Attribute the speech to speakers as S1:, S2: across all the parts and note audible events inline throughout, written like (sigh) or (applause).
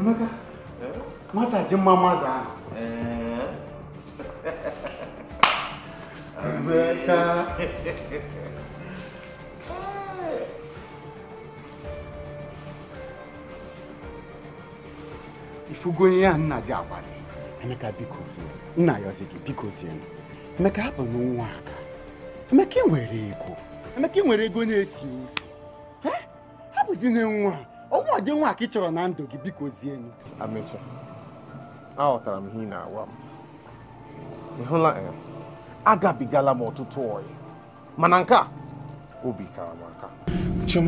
S1: Emeka, nwata ji mma mmaza ahụ. Emeka. Ifugo ihe a nna ji agwa gị. Emeka biko zie, nna yọzi gị biko zie. Emeka hapụ n'ụwa aka. Emeka ị ego. Emeka ị nwere nwa dị nwa ka ị chọrọ na ndụ gị biko zie m amechi aghọtara m ihe ị na-agwa m ịhụla hụla eh, agabigala m ọtụtụ ọyị mana nke a obi kara m aka chim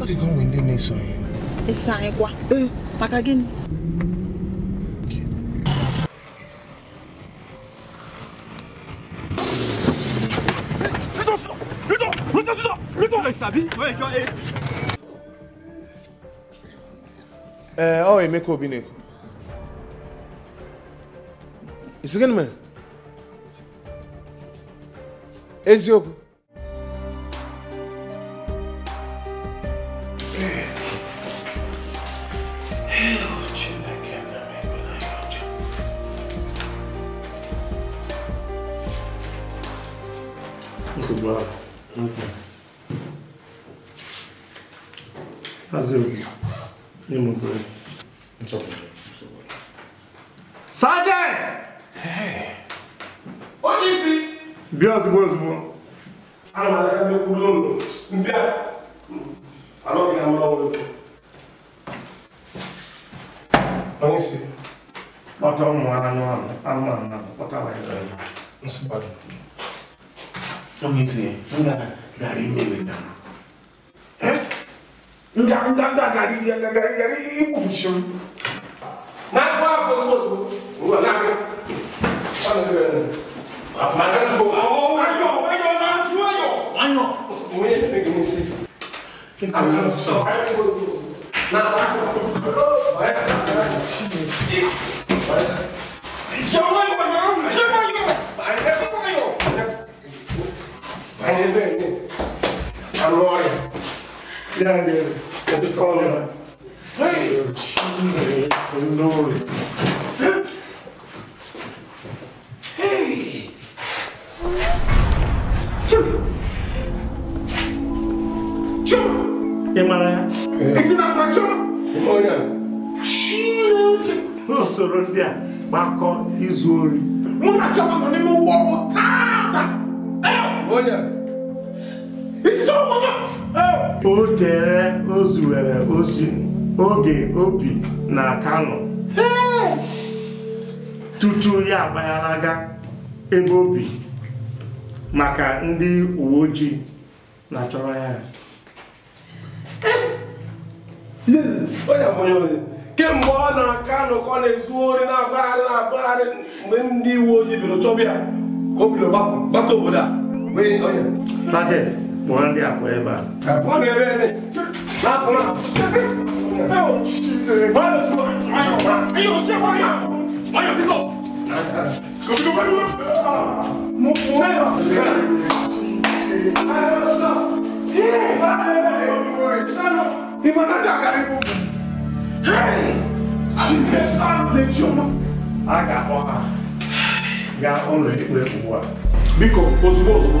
S1: ọ dịghị onwe ndị na-eso anyị eso anyị kwa maka gịnị
S2: àbí wọ́n ẹjọ́ eight.
S1: ẹ ọ Emeka Obi ne isi gịnị eziokwu Mr. Brown, Hazırım. Ne mutlu. Çok mutlu. Sergeant! Hey. O nesi? Biraz bu az bu. Ama ben de kullanıyorum. Bir an. Ama bir an bana olur. O nesi? Bata onu anı anı. Anı anı. Bata var ya. Nasıl bakın? O nesi? Bu da gari meyve damı nka nka nka gari nka gari gari ibu fushim na ko apo so so wa na ko ana ko ne ma ka ko awo
S2: ayo ayo na ju ayo ayo mo ye ne ke mo si ana so ayo ko na
S1: ko ba ya ka shi ne Jọ̀wọ́ ìwà yẹn ń jẹ́ báyọ̀. Àìlẹ́ fún báyọ̀. Àìlẹ́ bẹ́ẹ̀ ni. Àlọ́ rẹ̀. Yára ni rẹ̀. Né? É do Collor. Ei, Chum! Chum! Emara. Is it not my chum? Oh yeah. Chum! No, so Rodia, Marco is worried. Muna chum, I'm not even walking. Olha, yeah. Is it so? o tere o ozi oge obi na Kano tutu ya agbagharaga ebe obi maka ndị uwe ojii na-achọrọ ya eh! kemgbe ọ na Kano ka ọ na-ezu ori na-agbagharị na-agbagharị mgbe ndị uwe ojii bịara chọbịa ka o bidoro gbata obodo a Monday at wherever. Aga ọha ga ọnọdụ ekpere ugbu a. Biko, ozugbo ozugbo.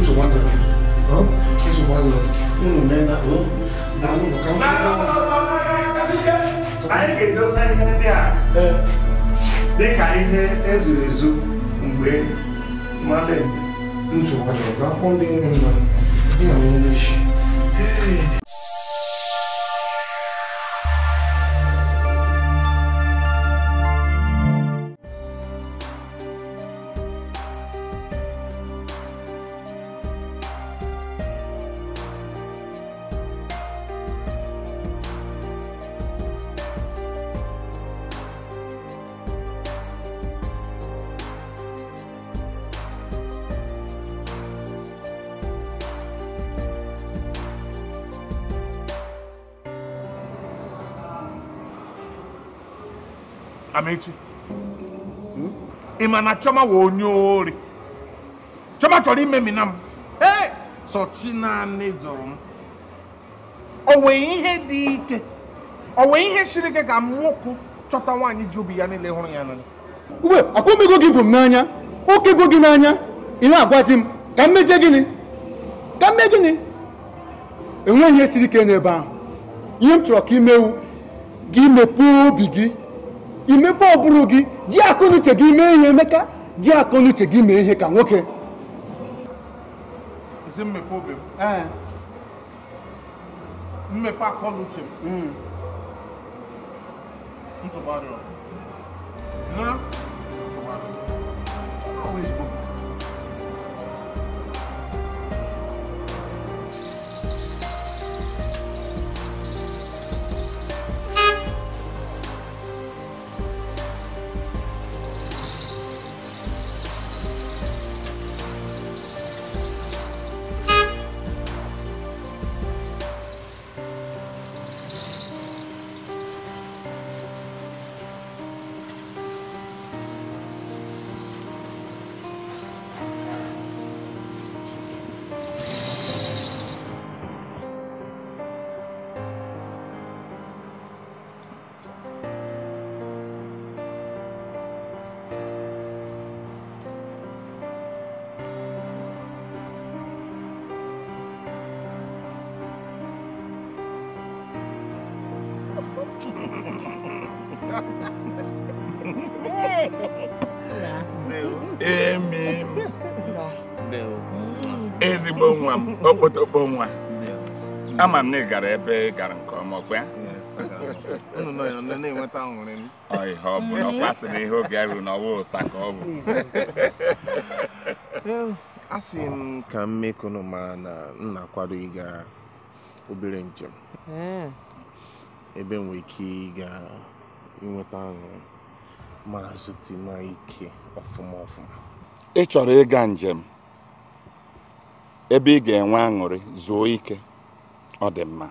S1: Mtu mmoja hapo. Mtu mmoja. Mungu nenda hapo. Na Mungu kama. Na anyị ga-edosa ihe ndị a dị Amechi ị ma na Chioma wụ onye ori Chioma chọrọ imemina m ee sọchi naanị jụrụ m o nwee ihe dị ike o nwee ihe siri ike ka m nwoke chọta nwaanyị ji obi ya niile hụrụ ya n'anya
S2: uwe akwamego gị bụ m n'anya okego gị n'anya ị na-agwazi
S1: m ka m gịnị ka m mee gịnị enweghị ihe siri ike n'ebe ahụ ihe m chọrọ ka imewu gị mepee obi gị imepe ọ bụrụ gị ji akọnuche gị mee ihe emeka ji akọnuche gị mee ihe ka nwoke isi mmepe obi m mmepe akọnuche m ntụgbarịọ
S2: na ntụgbarịọ always bụ
S1: emi mm. ezigbo nwa m okpotokpo nwa ama m na ị gara ebe ị gara nke ọma ọkwa ihe ọ bụ na ọ kwasịrị ihe oge
S2: ya ruru n'ọwa ụsa ka ọ bụ (laughs)
S1: sị m ka mmekunu mara na m na-akwado ịga obere njem mm. ebe m nwere ike ịga inweta aṅụrị ma zute ma ike ọfụma ọfụma ị chọrọ ịga njem ebe ị ga-enwe aṅụrị zuo ike ọ dị mma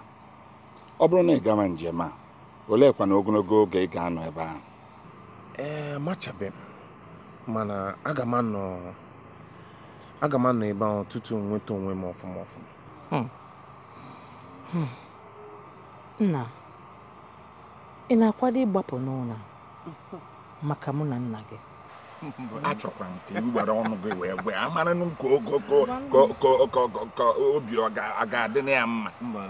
S2: ọ bụrụ na ị gawa njem a oleekwana ogologo oge ị ga-anọ ebe ahụ
S1: ee amachabeghị m mana aga m anọ aga m anọ ebe ahụ tutu nweta onwe m ọfụma ọfụma
S2: hmm. Hmm.
S1: nna ị na-akwado ịgbapụ n'ụlọ maka mụ na nna gị achọkwa nke ka iwere ọnụ gị wee gwe amara ka
S2: ogogo ka obi ọ ga-adị na ya mma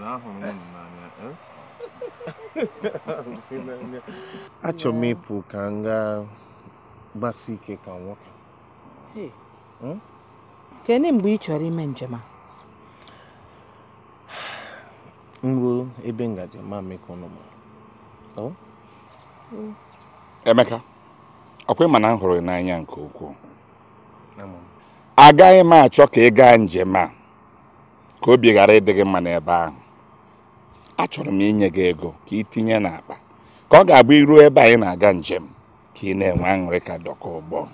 S1: eh? (laughs) achọ m ịpụ ka m gaa gbasi ike ka nwoke hmm?
S2: kedụ mgbe ị chọrọ ime njem a
S1: m ebe ngaji ma mekọ Mm. Emeka ọkwa ịma na m hụrụ n'anya nke ukwuu agaghị m achọ ka ị gaa njem a ka obi ghara ịdị gị mma n'ebe ahụ achọrọ m inye gị ego ka ị tinye n'akpa ka ọ ga-abụ iruo ebe anyị na-aga njem ka ị na-enwe aṅụrị ka dọka ụgbọ (laughs)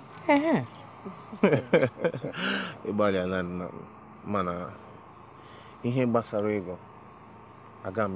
S1: ihe gbasara ego aga m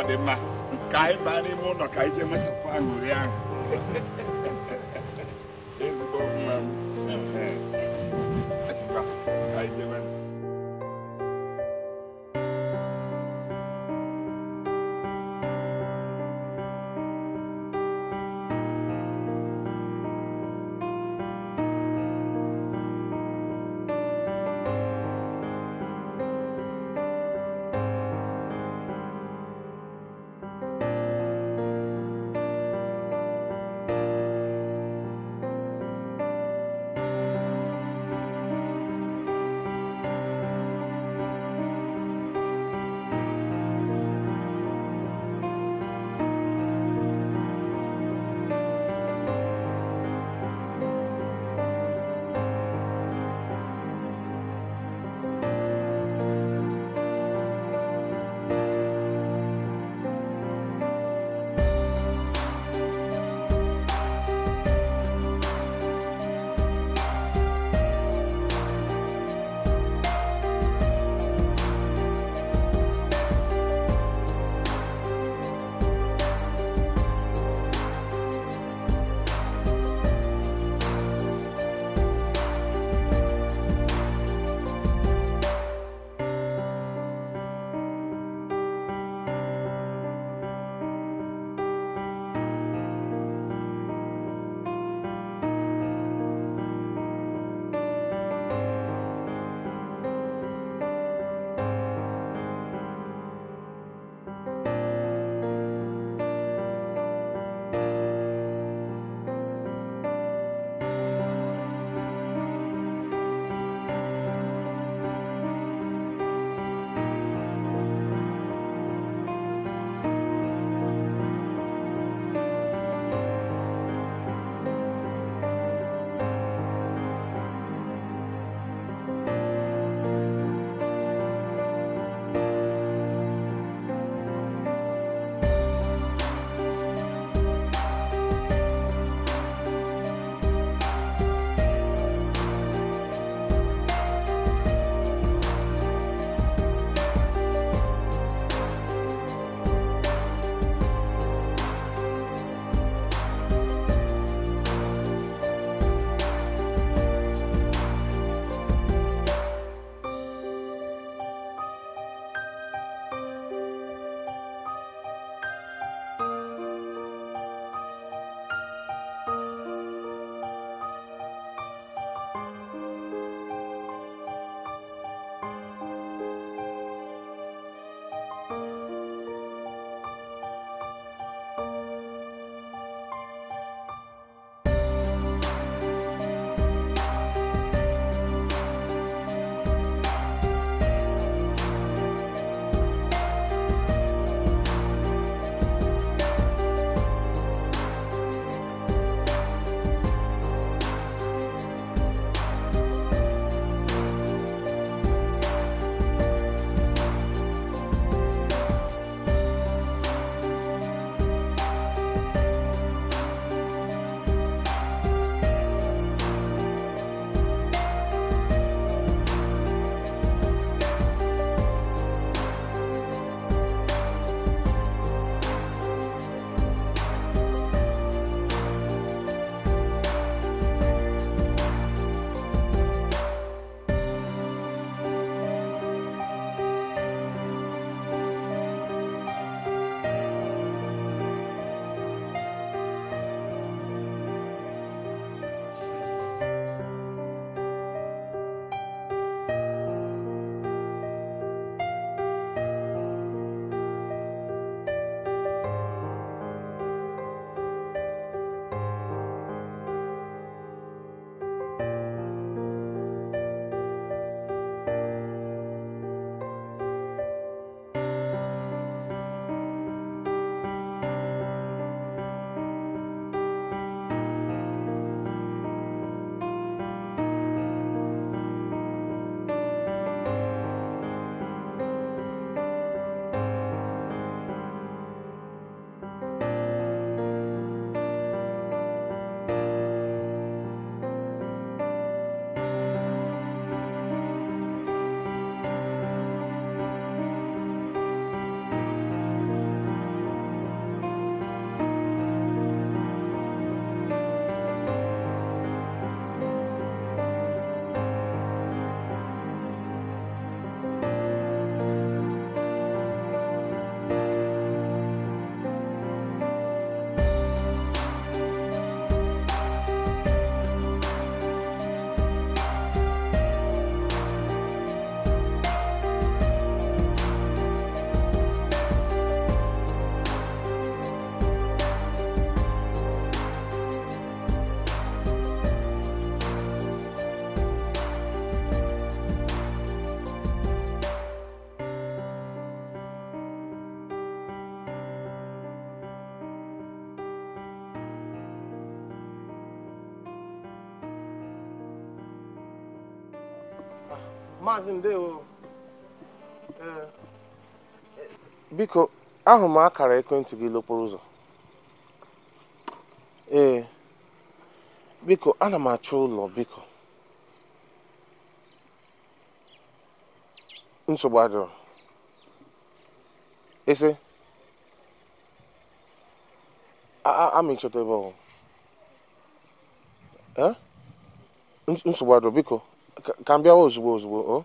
S1: ọ dị mma ka anyị baa n'ime ụlọ ka anyị jee metụkwa aṅụrị ahụ maazị ndewo
S2: e, e,
S1: biko ahụ m akara ekwentị gị n'okporo ụzọ ee biko ana m achọ ụlọ biko nsogbu adịrọ ese ama ịchọta ebe ọhụụ e? nsogbu adịrọ biko ka m bịawa ozugbo ozugbo o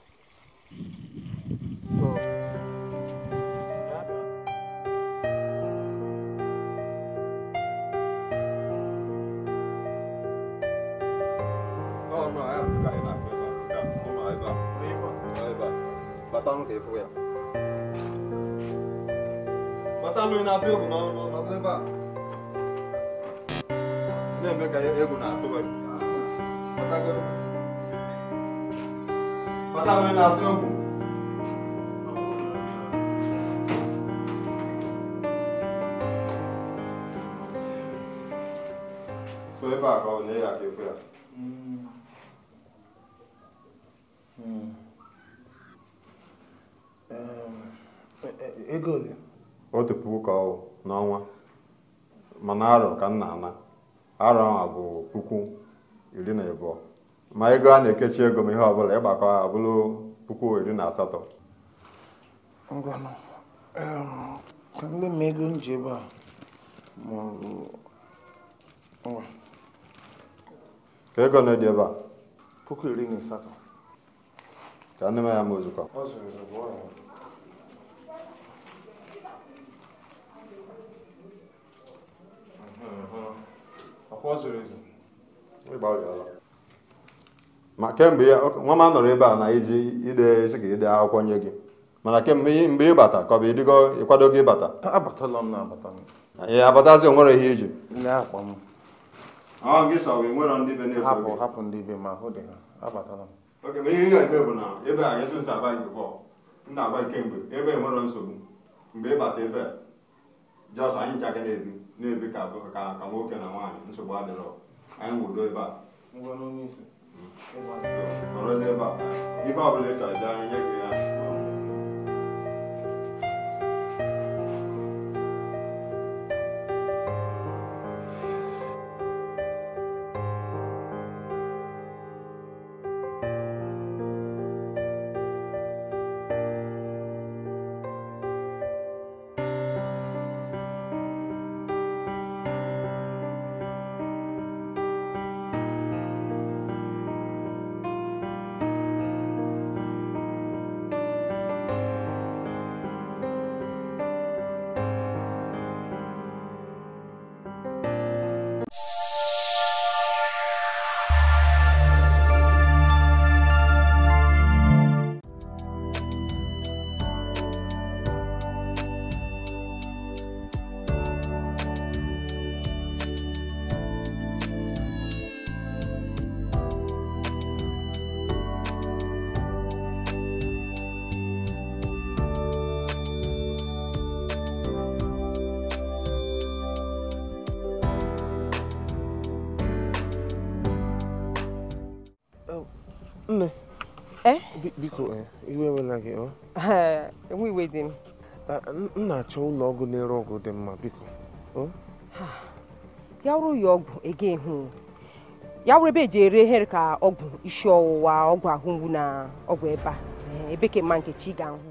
S2: batalụ na-atụ egwu n'ọnụ ebe a na-eme ka egwu na-atụ gị maka nri na-atụ egwu so ebe a ka ọ bụ ya ebe ekwe ya otu puku ka ọ n'ọnwa mana arọ ka nna na-ana arọ ahụ bụ puku iri na abụọ ma ego a na-ekechi ego m ihe ọbụla ịgbakọ ha bụrụ puku iri na asatọ ngwanụ
S1: ka ndị ma ego nji ebe a maọbụ nwa
S2: ka ego na dị ebe a puku iri na asatọ ka ndị ma ya ma ozukọ ọ zụrụ ezu ịgbalịala ma kemgbe ya nwa m anọrọ ebe a na iji ide isi ka ide akwụkwọ nye gị mana kemgbe mgbe ịbata ka ọ bụ ịdịgo ịkwado gị ịbata ee abatazi onwere ihe iji ihe na ebe a a anyị ji na-ebi na-ebi ka nwoke na nwaanyị nsogbu adịrọ 嗯，是，好多没办法，你爸爸能找人，家个人。
S1: biko eh, iwe ewela gị oh. (laughs) enwe iwe dị m m na-achọ ụlọ ọgwụ na-ere ọgwụ dị mma biko oh. (sighs) ya wụrụ ya ọgwụ ege ehu ya wụrụ ebe eji ere ehere ka ọgwụ isi ọwụwa ọgwụ ahụ mgbu na ọgwụ ebe a ebe ka mma nke chi ga-ahụ